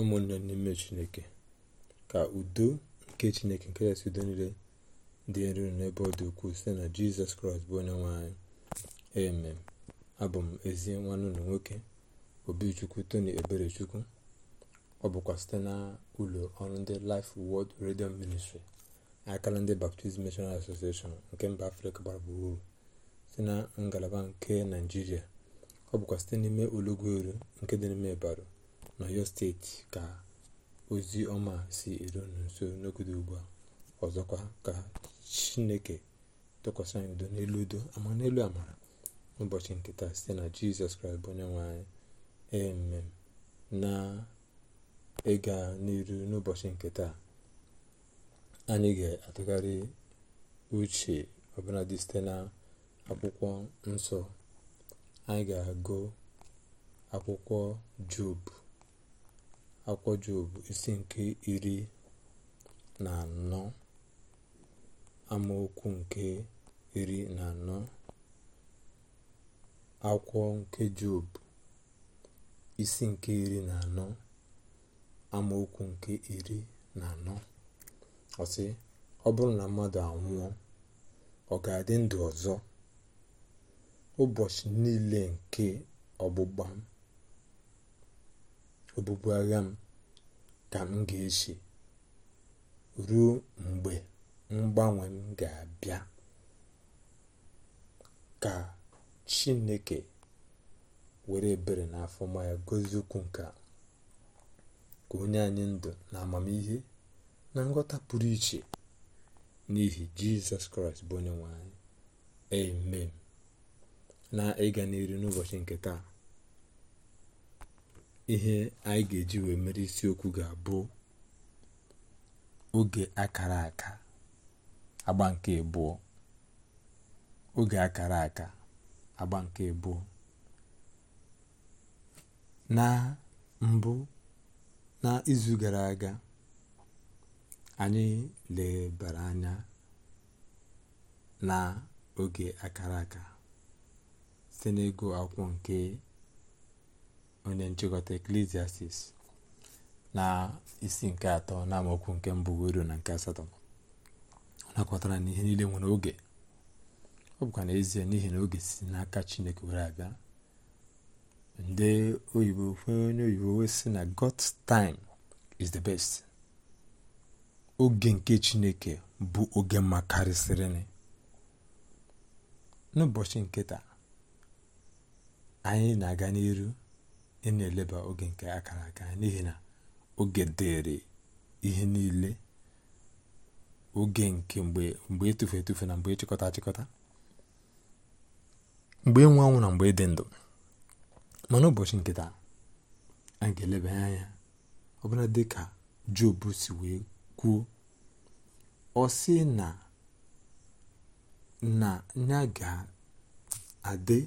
ụmụnne n'ime chineke ka udo nke chineke nke ya udo niile dị nro n'ebe ọ dị ukwuu site na jizọs kraịst bụ onye nwanyị anyị abụ m ezi nwanne ụlọ nwoke obichukwu tony eberechukwu ọ bụkwa site na ụlọ ọrụ ndị life world radio ministry akala ndị baptist missionary association nke mba afrịka gbara gburugburu site na ngalaba nke naijiria ọ bụkwa site n'ime olugbo eru nke dị n'ime ịbara n'ọyọ steeti ka ozi ọma si eru n'uso nso n'ogodo ugbu a ọzọkwa ka chineke tụkwasị anyị udo n'elu udo ama n'elu amara n'ụbọchị nke taa site na jizọs kraịst bụ onye nwanyị na ịga n'elu n'ụbọchị nke taa anyị ga-atụgharị uche ọbụla dị site na akwụkwọ nsọ anyị ga-agụ akwụkwọ job akwụkwọ job isi nke iri na anọ amaokwu nke iri na anọ akwụkwọ nke job isi nke iri na anọ amaokwu nke iri na anọ ọsị ọ bụrụ na mmadụ anwụọ ọ ga-adị ndụ ọzọ ụbọchị niile nke ọgbụgba obubu agha m ka m ga eji ruo mgbe mgbanwe m ga-abịa ka chineke were ebere na afọma ya gozie okwu nke ka onye anyị ndụ na amamihe na nghọta pụrụ iche n'ihi jizọs kraịst bụ onye nwe anyị amen na ịga n'iru n'ụbọchị nke taa ihe anyị ga-eji wee mere isiokwu ga-abụ oge akara aka agba nke abụọ oge akara aka agba nke abụọ na mbụ na izu gara aga anyị lebara anya na oge akara aka site n'ịgụ akwụkwọ nke onye nchịkọta eklesiastis na isi nke atọ na amaokwu nke mbụ ruo na nke asatọ ọ nakọtara na ihe niile nwere oge ọ bụkwa n'ezie n'ihi na oge si n'aka chineke were abịa ndị oyibo onye oyibo wee sị na God's time is the best oge nke chineke bụ oge mma karịsịrịnị n'ụbọchị nke taa anyị na-aga n'iru ị na-eleba oge nke akara aka n'ihi na oge dịrị ihe niile oge nke mgbe etufu etufu na mgbe ịchịkọta achịkọta mgbe ịnwe na mgbe ịdị ndụ mana ụbọchị nke a ga-eleba anya ọbụla dị ka Job si wee kwuo ọ sị na na ya ga-adị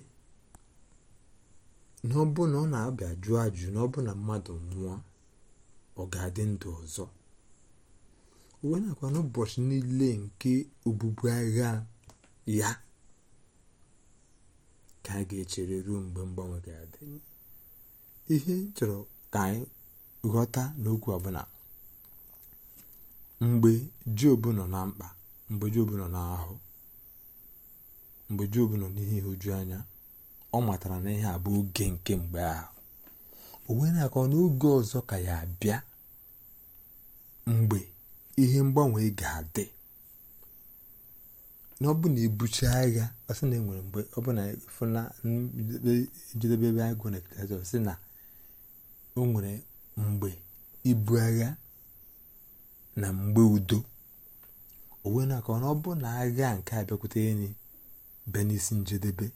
n'ọbụna ọ na abịa jụọ ajụ na na mmadụ nwụọ ọ ga-adị ndụ ọzọ uwe nakwa n'ụbọchị niile nke obubu agha ya ka a ga-echere ruo mgbe mgbanwe ga-adị ihe chọrọ ka anyị ghọta n'okwu ọbụla mgbe jobu nọ na mkpa mgbe jobu nọ n'ahụ mgbe jobu nọ n'ihe ihuju anya ọ matara na ihe a bụ oge nke mgbe ahụ o wee na n'oge ọzọ ka ya bịa mgbe ihe mgbanwe ga-adị na ọ bụ na agha ọsị na enwere mgbe ọ bụ na fụna njedebe ebe agụ na ekitazi sị na o nwere mgbe ibu agha na mgbe udo o wee na ọ bụ na agha nke abịakwute enyi bịa n'isi njedebe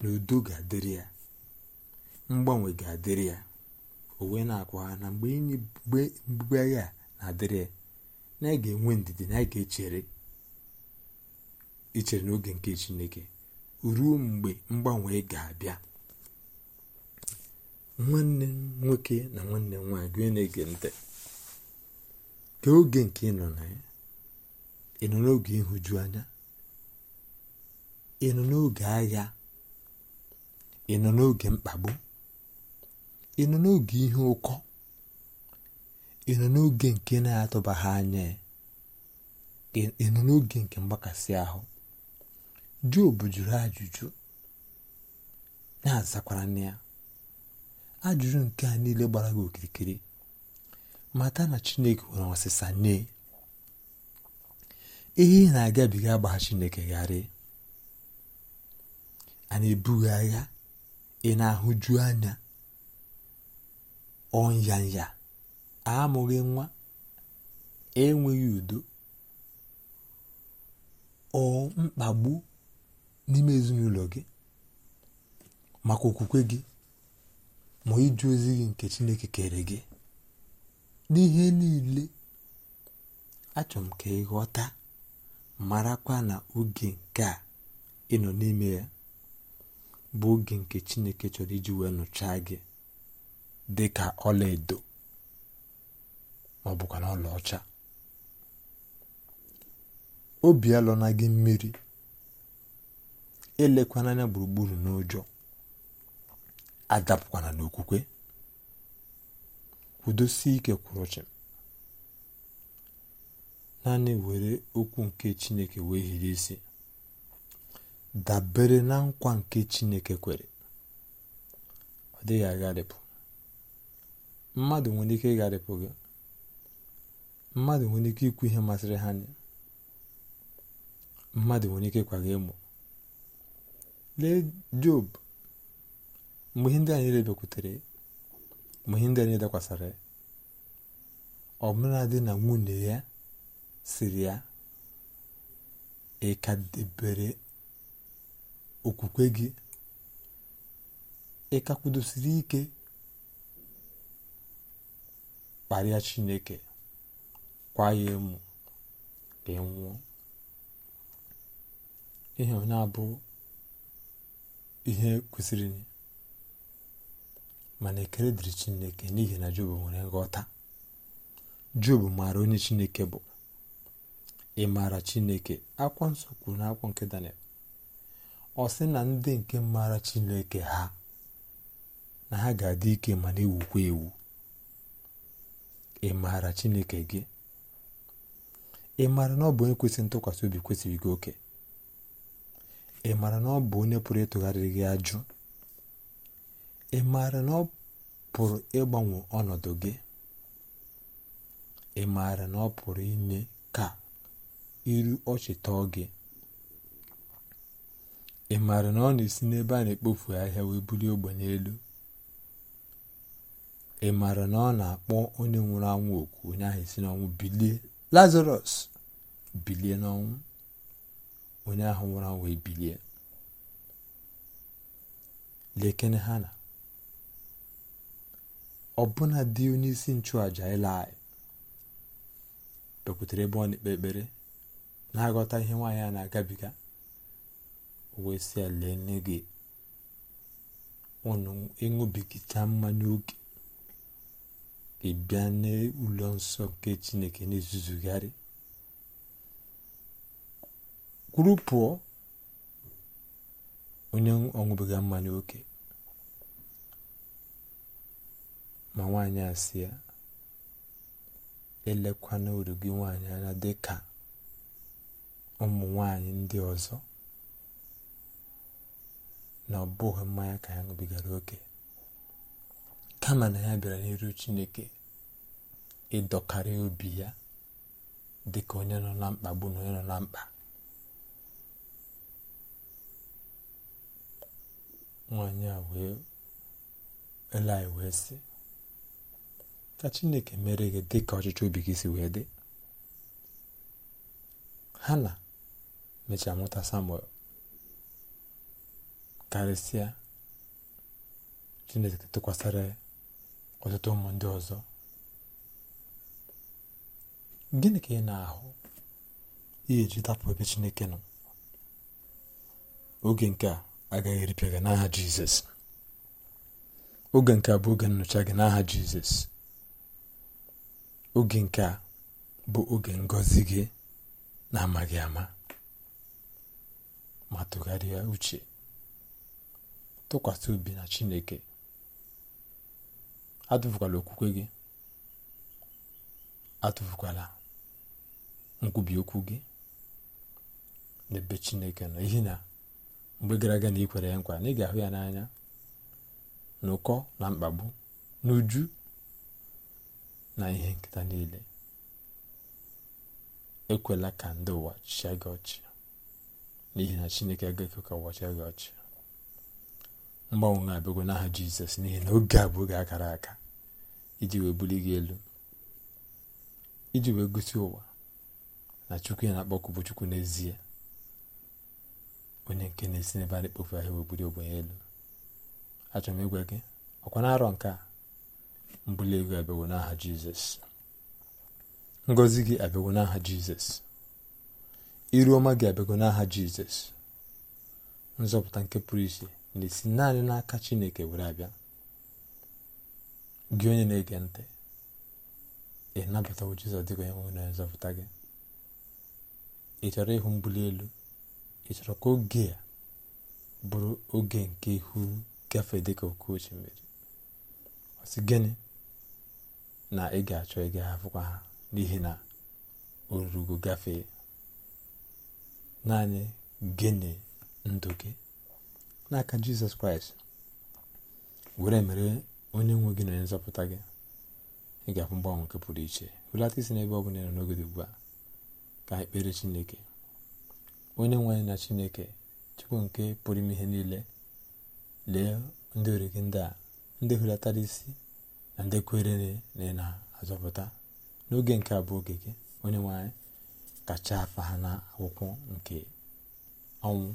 na udo ga-adịrị ya mgbanwe ga-adịrị ya o wee na-akwa ha na mgbe inye mgbugbe agha na-adịrị ya na anyị ga-enwe ndidi na anyị ga-echere ichere n'oge nke chineke ruo mgbe mgbanwe ga-abịa nwanne m nwoke na nwanne m nwaanyị gị na-ege ntị ka oge nke ị nọ na ya ị nọ n'oge ịhụju anya ị nọ n'oge agha ị nọ n'oge mkpagbu ị nọ n'oge ihe ụkọ ị nọ n'oge nke na-atụbaghị anya ị nọ n'oge nke mgbakasị ahụ Job jụrụ ajụjụ na-azakwara na ya ajụjụ nke a niile gbara gị okirikiri mata na chineke nwere ọsịsa nye ihe na-agabiga gbaa chineke gharị a na-ebughị agha ị na-ahụju anya ọnyanya amụghị nwa enweghị udo ọ mkpagbu n'ime ezinụlọ gị maka okwukwe gị ma ịjụ ozi gị nke chineke kere gị n'ihe niile achọrọ m ka ịghọta marakwa na oge nke a ị nọ n'ime ya bụ oge nke chineke chọrọ iji wee nụchaa gị dị ka ọlaedo ma ọ bụkwa na ọcha. obi alọna gị mmiri elekwana anya gburugburu n'ụjọ adapụkwana n'okwukwe kwudosie ike kwụrụ chịm naanị were okwu nke chineke wee hiri isi dabere na nkwa nke chineke kwere ọ dịghị agharịpụ mmadụ nwere ike ịgharịpụ gị mmadụ nwere ike ikwu ihe masịrị ha anya mmadụ nwere ike kwaga ịmụ emo lee job mgbe ihe ndị anyị rebekwutere mgbe ihe ndị anyị dakwasara ya dị na nwunye ya siri ya ịka okwukwe gị ị ka kwudosiri ike kparịa chineke kwa ya emu ka ị nwụọ ihe onye abụ ihe kwesịrị mana e dịrị chineke n'ihi na job nwere nghọta job maara onye chineke bụ ị maara chineke akwa nsọ kwuru n'akwụkwọ nke daniel ọ sị na ndị nke maara chineke ha na ha ga-adị ike ma na-ewukwa ewu ị maara chineke gị ị maara na ọ bụ onye kwesịrị ntụkwasị obi kwesịrị gị oke ị maara na ọ bụ onye pụrụ ịtụgharịrị gị ajụ ị maara na ọ pụrụ ịgbanwe ọnọdụ gị ị maara na ọ pụrụ inye ka iru ọchị gị ị maara na ọ na-esi n'ebe a na-ekpofu ahịa wee bulie ogbenye elu ị maara na ọ na-akpọ onye nwụrụ anwụ oku onye ahụ esi n'ọnwụ bilie lazarus bilie n'ọnwụ onye ahụ nwụrụ anwụ ebilie lekene ha na ọbụna dị onye isi nchụàja anyị bekwutere ebe ọ na-ekpe ekpere na-aghọta ihe nwaanyị a na-agabiga wee sị ya lee nne gị unu ịṅụbigicha mmanya oke ị bịa n'ụlọ nsọ nke chineke na-ezuzugharị kwuru pụọ onye ọṅụbiga mmanya oke ma nwaanyị asị ya elekwana uru gị nwaanyị anya ka ụmụ nwaanyị ndị ọzọ na ọ bụghị mmanya ka ya ṅụbigara oke kama na ya bịara n'iru chineke ịdọkarị obi ya dị ka onye nọ na mkpagbu na onye nọ na mkpa nwanyị a wee eli wee sị ka chineke mere gị dị ka ọchịchọ obi gị si wee dị ha na mechaa mụta samuel karịsịa chineke tụkwasịrị ọtụtụ ụmụ ndị ọzọ gịnị ka ị na-ahụ ihe ji dapụ ebe chineke nọ oge nke a agaghị eripịa gị n'aha jizọs oge nke a bụ oge nnọcha gị n'aha jizọs oge nke a bụ oge ngọzi gị na-amaghị ama ma tụgharịa uche tụkwasị obi na chineke atụfukwala okwukwe gị atụfukwala nkwubi okwu gị n'ebe chineke nọ ihi na mgbe gara aga na ikwere ya nkwa na ị ga-ahụ ya n'anya n'ụkọ na mkpagbu n'uju na ihe nketa niile ekwela ka ndị ụwa chịa gị ọchị n'ihi na chineke agaghị ka ụwa chịa gị ọchị mgbanwe na-abịagwo n'aha jizọs n'ihi na oge a bụ oge akara aka iji wee buli gị elu iji wee gosi ụwa na chukwu ya na-akpọkụ bụ chukwu n'ezie onye nke na-esi n'ebe a na-ekpofu ahịa wee buli ogbenye elu achọrọ m ịgwa gị ọkwa na arọ nke a mbuli ego abịagwo n'aha jizọs ngọzi gị abịagwo n'aha jizọs iru ọma gị abịagwo n'aha jizọs nzọpụta nke pụrụ iche na-esi naanị n'aka chineke were abịa gị onye na-ege ntị ị nabatawo jizọs dịka onye nwere onye nzọpụta gị ị chọrọ ịhụ mbuli elu ị chọrọ ka oge a bụrụ oge nke ihu gafee dịka oke osimiri ọsị gịnị na ị ga-achọ ị ga ha n'ihi na orugo gafee naanị gịnị ndụ gị n'aka jizọs kraịst were mere onye nwe gị na onye nzọpụta gị ị ga-afụ mgbanwe nke pụrụ iche hụlata isi ebe ọ bụla na n'oge dị ugbu a ka ekpere chineke onye nwe anyị na chineke chukwu nke pụrụ ime ihe niile lee ndị ori gị ndị a ndị hụlatara isi na ndị kwere na ị na-azọpụta n'oge nke a oge gị onye nwe anyị kacha afa ha na akwụkwọ nke ọnwụ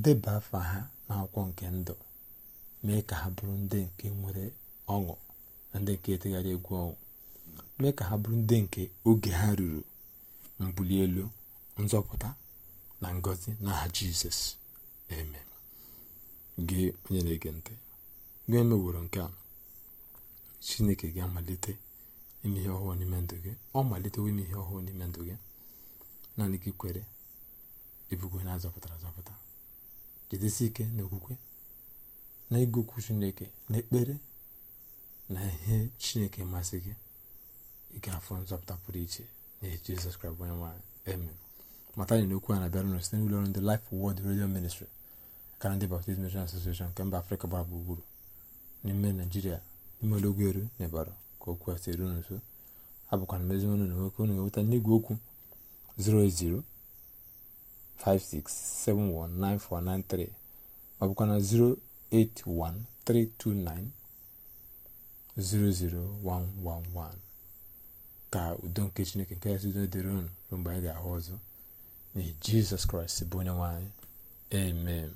deba afa ha n'akwụkwọ nke ndụ mee ka ha bụrụ ndị nke nwere ọṅụ na ndị nke etegharị egwu ọṅụ mee ka ha bụrụ ndị nke oge ha ruru mbuli elu nzọpụta na ngọzi n'aha jizọs eme gị onye na-ege ntị gị emeworo nke a chineke ga-amalite ime ihe ọhụụ n'ime ndụ gị ọ malitewo ime ihe ọhụụ n'ime ndụ gị naanị gị kwere ebugo na azọpụtara azọpụta jidesi ike n'okwukwe na ịgụ okwu chineke na ekpere na ihe chineke masị gị ị nzọpụta pụrụ iche na jizọs kraịst onye nwanyị amen mata anyị na okwu a na-abịara site n'ụlọ ọrụ ndị Life Word redio ministri akara ndị Baptist Mission Association nke mba Afrịka gbara gburugburu n'ime Naijiria n'ime ologwu eru na ịbara ka okwu a si eru nso abụkwa na mezi ọnụ na nwoke unu ga-enweta n'igwe okwu 080 08056719493 ma ọ 08132900111 ka udo nke chineke nke yasị udo dịrị unu mgbe anyị ga-ahụ ọzọ n'ihi jizọs kraịst bụ onye nwe anyị amen